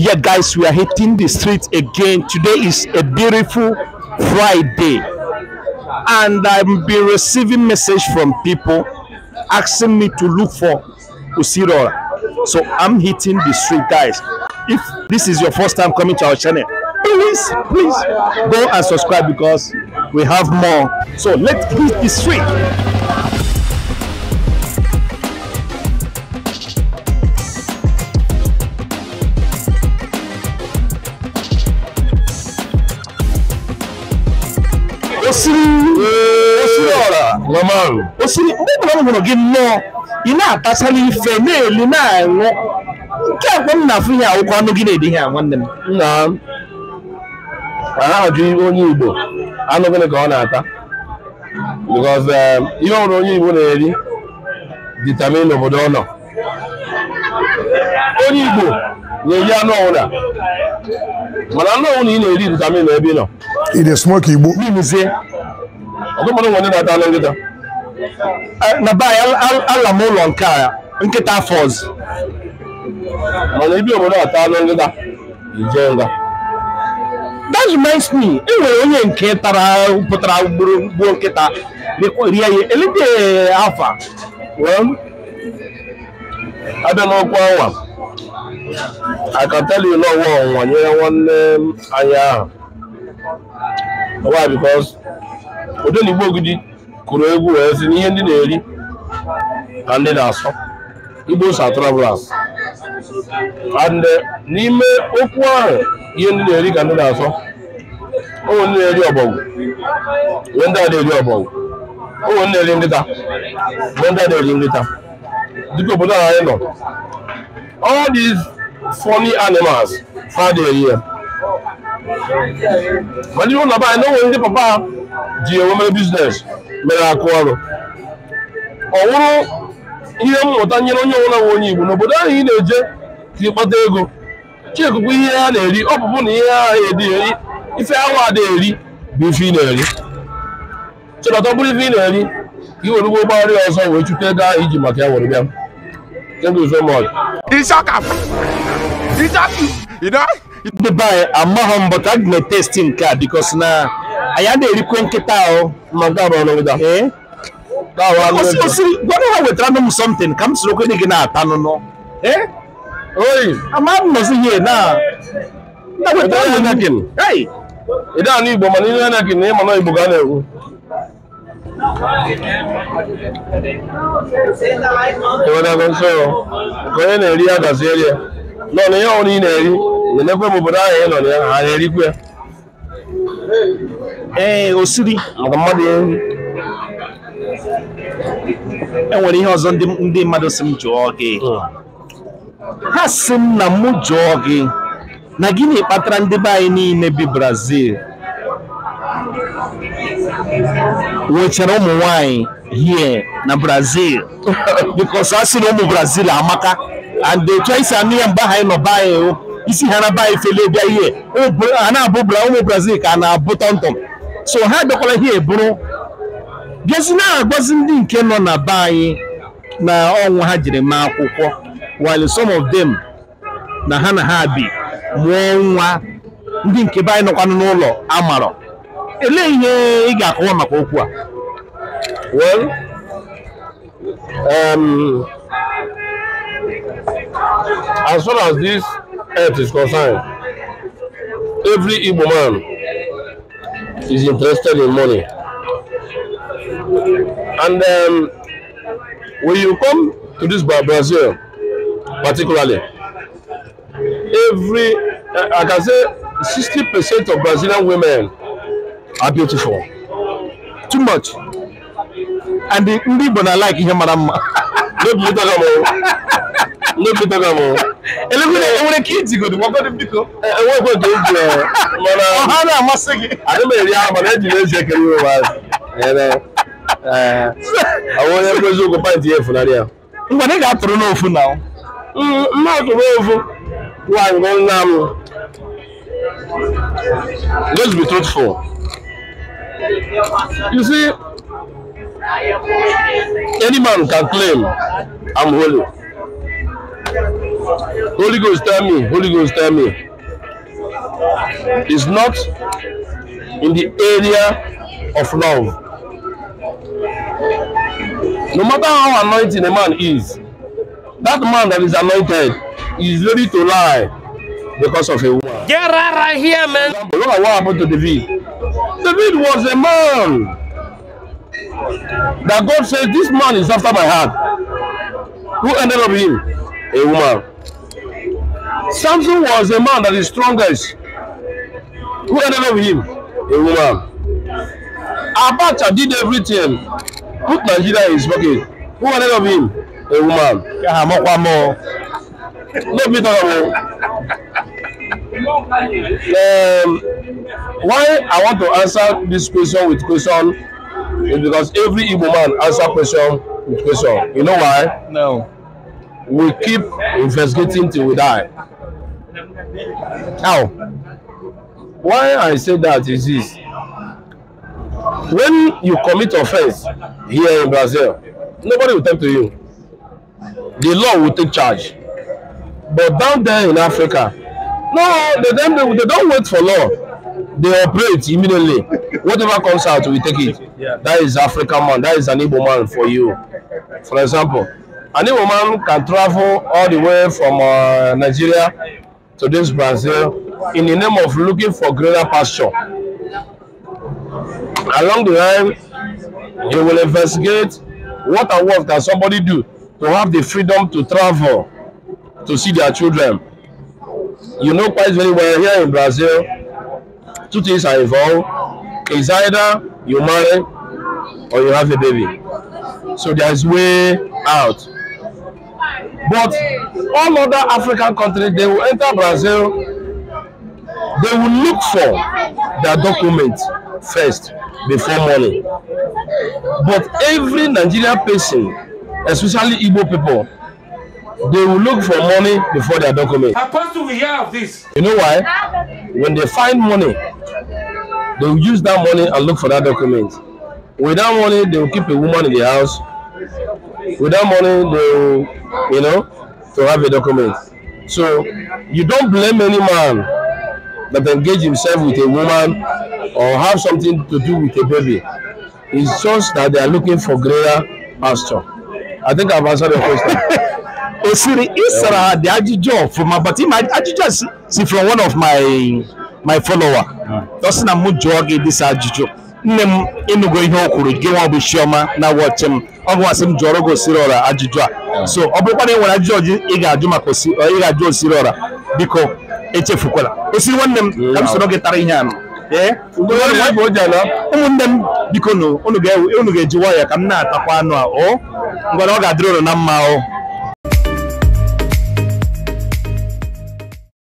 yeah guys we are hitting the streets again today is a beautiful friday and i've been receiving message from people asking me to look for usirora so i'm hitting the street guys if this is your first time coming to our channel please please go and subscribe because we have more so let's hit the street Ngomong. Usini mbona ngomong gino ina atasa ni fene ni na ngo. Nke akwa na afu ya okwa no gine di ha nwanne m. Na. Ana aju onye Igbo. Anu gine ka ọ na-ata. Because um, ihe ọrụ onye Igbo na-eri determine obodo ọ nọ. Onye Igbo na-eri anụ ọwụna. Mana anụ ọwụna ị na-eri determine ebe ị nọ. Ị na-esmoke Igbo. Ọ dụmọdụ nwere na-ata anụ nkịta. Eh, n'abalị be ala m ụlọ nke a nkịta afọ ọzọ mana ibi obodo ata anụ ngịda ije nga that reminds me e onye nke tara pụtara gbuo nkịta rie ya elite afa abịa n'ọkwa ọnwa akatali n'ọwa ọnwa nyere nwanne anya ahụ ụdị na igbo ogidi kụrụ egwu wee sị na ihe ndị na-eri ka ndị na-asọ igbo sa travelers eh, n'ime okwu ahụ ihe ndị na-eri ka ndị na-asọ onwe ndị na-eri ọbọgwụ onwe ndị na-eri ọbọgwụ onwe ndị na-eri nkịta onwe ndị na-eri nkịta dịka obodo a anyị nọ all these funny animals ha na-eri ya mana ihe ụlọ be anyị na onwe ndị papa ji enwe mere biznes mere akụ ọrụ ọ wụrụ ihe mmụta nyere onye ọbụla nwe onye Igbo n'obodo ahụ ị na-eje ka ịkpata ego chikụkụ ihe ha na-eri ọ bụbụ na ihe ha na-eri ife awa ada eri bụ ife ị na-eri chọrọta ọ bụrụ ife ị na-eri ka ị were ụgbọ ụgbọghara ọzọ wee chute ego ahụ iji maka ya were bịa ndị be anyị amaghị mbọ ka a ga na-etesti nke a bikos na anyị na erikwe nkịta ahụ gwara ha wetara nụ m ka m soro gị na-ata nụnụ ịda anụ Igbo mana ihe na ịma Igbo ga na ka onye na-eri ya ihe ị na-eri na m obodo ahụ ị nọ na ya ha na-erikwe ee osiri mmadụ enwere ihe ọzọ ndị mmadụ si m jụọ gị hmm. ha si m na mụ jụọ gị na gịnị kpatara ndị be anyị niile bi Brazil nwechara ụmụ nwanyị here na Brazil because a sị ụmụ Brazil amaka and the choice si anụ ya mgbe anyị nọ be isi ha na be anyị fele bịa ihe ụmụ Brazil ka a na-abụ tọmtọm so ha bịakwara ihe eburu bịazi na-agbazi ndị nke nọ na be anyị na ọnwụ ha jiri mee akwụkwọ while some of them na ha na ha bi mụọ nwa ndị nke be anyị nọkwanụ n'ụlọ amarọ elee ihe ị ga-akọwa maka okwu a well um, as far as this earth is concerned every Igbo man is interested in money. And um, when you come to this Brazil, particularly, every, I can say 60% of Brazilian women are beautiful. Too much. And the Igbo like Ihe Maramma. Don't no be talk am o enwere ka iji godo gwakọdo biko enwekwe ka eji mana ọha na-amasị gị adị m eri ahụ mana ejiri eji ekere iwe maazị ọwụ onye nkwezi ụkwụ pint ya efunarị ya mgbe ị ga-atụrụ n'ofu na mma atụrụ ofu nwaanyị bụ nna m let's be truthful you see any man can claim I'm holy Holy Ghost tell me, Holy Ghost tell me. It's not in the area of love. No matter how anointing a man is, that man that is anointed is ready to lie because of a woman. Get right here, man. Look at what happened to David. David was a man that God said, This man is after my heart. Who ended up him? A woman. Samson was a man that is strongest. Who ended up with him? A woman. Abacha did everything. Put Nigeria in his pocket. Who ended up with him? A woman. Yeah, I'm one more. Let me talk about um, why I want to answer this question with question is because every Igbo man answer question with question. You know why? No. We keep investigating till we die. Now, Why I say that is this. When you commit offense here in Brazil, nobody will talk to you. The law will take charge. But down there in Africa, no, they, they, they don't wait for law. They operate immediately. Whatever comes out, we take it. That is African man. That is an Igbo man for you. For example, an Igbo man can travel all the way from uh, Nigeria to this Brazil in the name of looking for greater pasture. Along the line, you will investigate what and what can somebody do to have the freedom to travel to see their children. You know quite very well here in Brazil, two things are involved. It's either you marry or you have a baby. So there is way out. But all other African countries, they will enter Brazil, they will look for their document first before money. But every Nigerian person, especially Igbo people, they will look for money before their document. How possible we hear of this? You know why? When they find money, they will use that money and look for that document. With that money, they will keep a woman in the house Without money, they you know, to have a document. So you don't blame any man that engage himself with a woman or have something to do with a baby. It's just that they are looking for greater pasture. I think I've answered your question. Eh, Osiri Isra the Ajijo from my but my Ajijo see from one of my my follower. Doesn't na mu this Ajijo. Nne m ịnụgo ihe o kwuru gị nwa bụ Chioma na wọchị m ọ bụ asị m jụọrọ gị osiri ọra ajụjụ a so ọ bụrụkwa na ị e nwere ajụjụ ị ga-ajụ maka ị ga-ajụ osiri ọra biko echefukwala osiri nwanne m ka m soro gị tara ihe anụ ụmụnne m biko unu ga-eji waya ka m na-atakwa anụ a o ngwara ọ ga-adịrị ụlọ na mma o